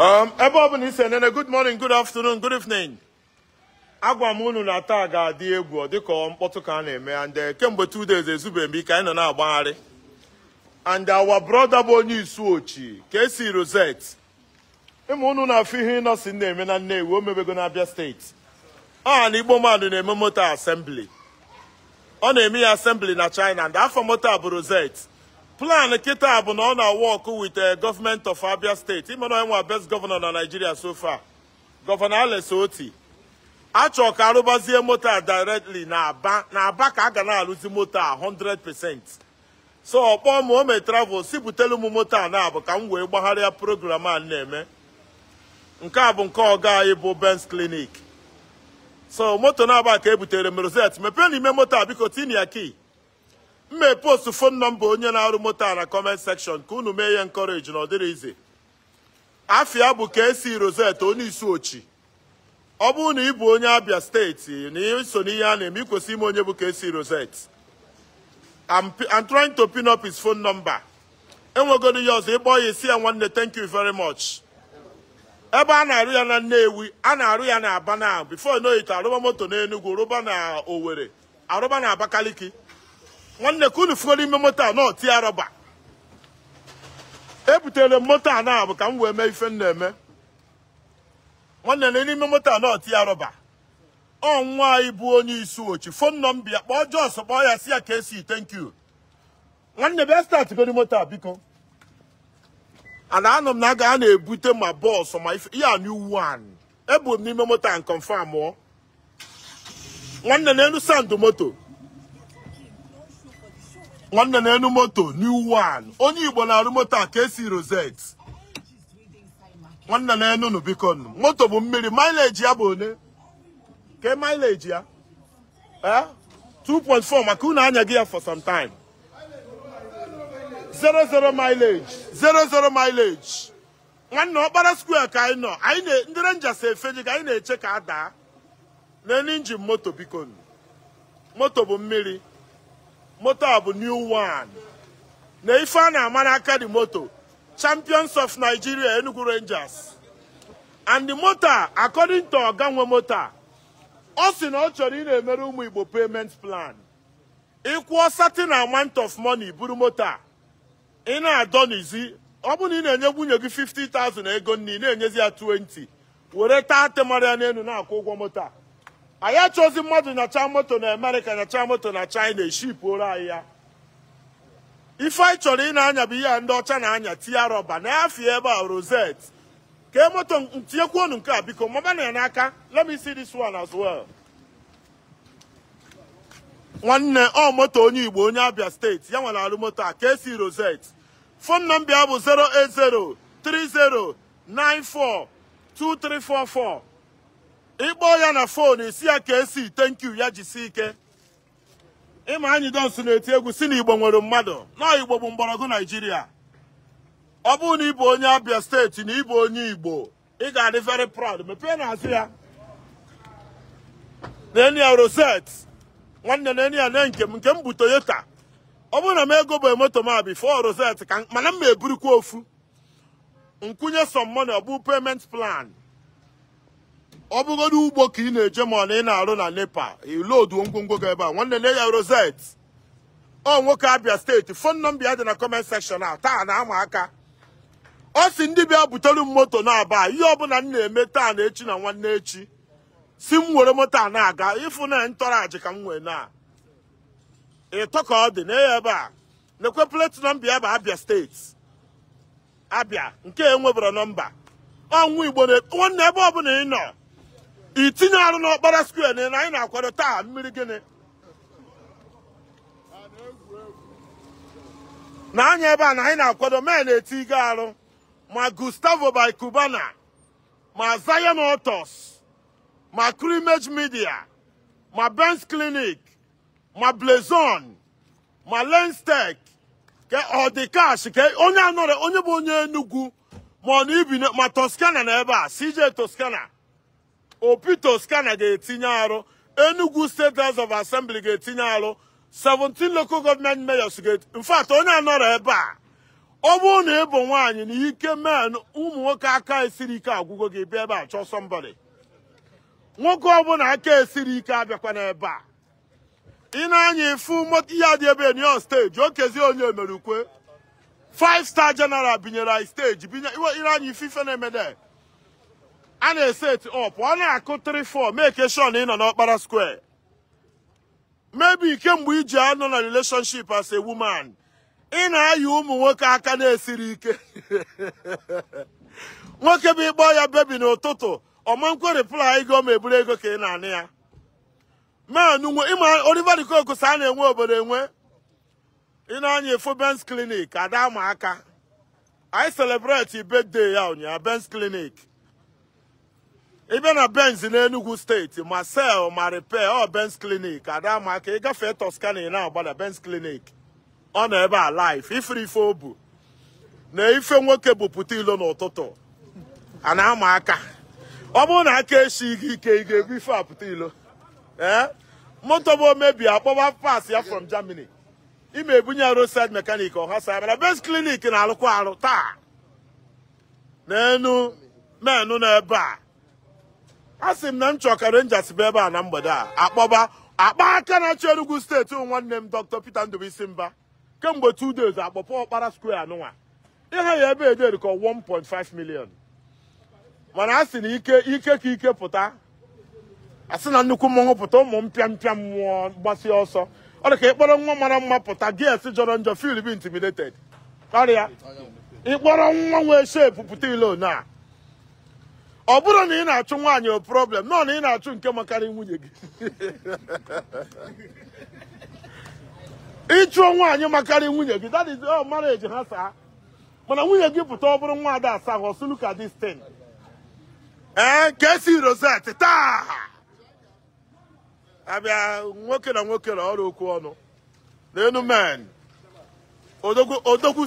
Um, ebe ọ bụla isi good morning good afternoon good evening agwa m na taa ga-adị egwu dịka mkpọtụ ka a na-eme and ndị uh, kemgbe two days ezube mbi ka anyị na-agbagharị and our brother bụ onye isu ochi Kcee Rosette unu na-afụ ihe ịnọsi na-eme na nne o mebego na Abia steeti ọha na Igbo mmadụ na-eme moto asembli ọ na-eme ya asembli na China and afọ moto bụ Rosette plan kịta bụ na ọ na-awọkụ with the eh, government of Abia State ịmana nwa best governor na Nigeria so far Governor Alex Oti achọ ka arụbazie moto a directly na na aba ka a ga na-arụzi moto a 100% so ọkpọ m ome travel si butelu m moto a na abụ ka m wee gbagharịa program a na-eme nke a bụ nke ọga anyị bụ Benz Clinic so moto na-aba ka ebutere m Rosette mepee n'ime moto a biko tinia ya mme post fon nọmba onye na-arụ moto a na kọment sekshọn ka unu mee ihe nkọreji na ọ afia bụ ka esi rozet onye isi ochi ọ bụrụ na ị bụ onye abia steeti na iso n'ihe a na-eme ikwesị ime onye bụ ka esi rozet I'm trying to pin up his phone number enwegoro ya ọzọ ịkpọ ya isi ya nwanne thank you very much ebe a na-arụ ya na Nnewi a na-arụ ya na Aba na before arụba moto na enugwu rụba na Owerri arụba na Abakaliki nwanne ka unu fugoro ime moto a nọ tie rọba ebutere m moto a na ka m wee mee ife m na-eme nwanne na n'ime moto a nọ tie rọba ọ nwa anyị bụ onye isi ochi fon nọ m bịa kpọọ Jos kpọọ ya si ya ka esi thank you nwanne bịa statgori moto a biko ana anọ m na aga a na-ebute ma bọọsụ ma ife ya new one ebu m n'ime moto a nkọmfam nwanne na elu sandụ moto nwanne na enu moto new one onye igbo na-arụ moto a ka esi rosette nwanne na enu nu biko nu moto bụ mmiri mileage ya bụ one ke mileage ya eh 2.4 maka unu anya gị ya for some time 00 mileage 00 mileage nwanne ọkpara square ka anyị nọ anyị ndị renjas efeji ka anyị na-eche ka a daa na enu injin moto biko nu moto bụ mmiri moto a bụ new one na ife a na-ama aka di moto champions of nigeria enugu rangers and the moto according to oga nwe moto ọ sị na ọ chọrọ ị na-emere ụmụ igbo payment plan ịkwụọ satin amount of money buru moto ị na-adọ n'izi ọ bụrụ na ị na-enye nwunye gị 50,000 ego nni na-enyezi ya 20 were taa temara ya n'elu na-akwụ ụgwọ moto a anyị achọzi mmadụ nyacha moto na amerịka nyacha moto na china eshipuola anyị ya ife anyị chọrọ ị na-anya bụ ihe a ndị ọcha na-anya tinye rọba na afie ebe a rozet kee moto ntinyekwuonu nke a biko maba na ya n'aka let dị see this one as well nwanne ọ moto onye igbo onye abia steeti ya nwere alụ moto a ka esi rozet fon nọmba ya bụ 08030942344 ịkpọ ya na fon esi ya ka esi itenkyu ya si ike ịma anyị donso na-eti egwu si na igbo nwere mmadụ na igbo bụ mgbọrọgwụ naijiria ọ bụrụ na ịbụ onye abịa steeti na ịbụ onye igbo ị ga-adị very proud mepee na azụ ya na roset nwanne na enia na nke m nke m bụ toyota ọ bụrụ na m ego bụ moto ma fọ roset ka mana m ma eburukwa ofu nkwụnye some money ọ bụ payment plan ọ bụgodị ugbo ka ị na-eje ma ọ na ị na-arụ na nepa iloduo ngwongwo gị ebe a nwanne nne ya Rosette ọ nwoke Abia steeti fon nọmbia dị na kọment sekshọn a taa na-ama aka ọ si ndị bịa butere m moto na-aba ihe ọbụla m na-eme taa na echi na nwanne echi si m nwere moto a na-aga ịfụ na ntọrọ ajị ka m wee na ịtọ ka ọ dị na ebe a na-ekwe pleti bụ Abia steeti Abia nke enwebara nọmba ọnwụ Igbo nwanne ebe ọbụla ị nọ itinye arụ n'ọkpara square na anyị na-akwado taa mmiri gịnị na anya ebe a na anyị na-akwado mee na-eti arụ ma Gustavo by Cubana ma Zion otos ma Crimage Media ma bens Clinic ma Blazon ma Lenstech ka ọ dị ke ka onye anọrọ onye bụ onye Enugu ma ọ na ibi ma Toscana na ebe a CJ toskana. opito skana ga-etinye arụ enugu state house of assembly ga-etinye arụ 17 local government mayors ga infact onye anọrọ ebe a ọ bụrụ na ị bụ nwaanyị na ike men ụmụ nwoke aka esiri ike agwụgo gị bịa ebe a chọọ sọmbọdị nwoke ọbụla aka esiri ike abịakwa n'ebe a ị na-anya ifu ihe adị ebe Union steji okezie onye emerukwe 5 star general binyere anyị steji binye ị na-anya ife ife na-emede a na-ese eti ọ na-akụ 3-4 make sure na ị nọ n'ọkpara square maybe kemgbe iji nọ na relationship as a woman ị na-ayị ụmụ nwoke aka na-esiri ike nwoke bụ ịkpọ ya bebi n'ụtụtụ ọmankwe reply ego ma eburu ego ka ị na-anị ya ịma Oliver De a na-enwe obodo enwe ị anya efu Clinic ada aka i celebrate birthday ya ụnyaahụ bens Clinic ebe na benz n'enugwu steeti ma sel ma repair ọ oh, benz clinic adamaka ịgafee toscani na-agbada benz clinic ọ nọ ebe a life ifere ife o bu na ife nwoke bupụta ilo n'ụtụtụ a na-ama aka ọ bụrụ na aka echi gị ike ị ga-ebu ife apụta ilo ee moto bụ omebi akpọba pas ya from germany ime ebunye roadside mekanik ọhasa mana benz clinic na-alụkwa arụ taa n'enu menu n'ebe a a m na m chọ ka bụ ebe a na mgbede a akpọba akpa aka na-achị steeti nwanne m Dr. Peter Ndubuisi Mba kemgbe two days akpọpọ ọkpara square anụnwa ihe ya ebe ederi ka 1.5 million mana a na ike ike ka ike pụta asị na nnukwu mmanwụ pụta ụmụ m mpịa mmụọ gbasie ọsọ ọ dị ka ịkpọrọ nwa mara mma pụta gs jọrọ njọ fil bi intimidated ọrịa ịkpọrọ nwa nwee shep pụta ile one a ọ bụrụ na ị na-achụ nwaanyị o problem nọ na ị na-achụ nke makarị nwunye gị ịchụọ nwaanyị makarị nwunye gị that is all marriage ha saa mana nwunye gị pụta ọ bụrụ nwa ada asaa hụ ọsụ look at this thing ee eh, ka esi rosette taa abịa nwoke na nwoke na ọrụ okwu ọnụ n'enu men odogwu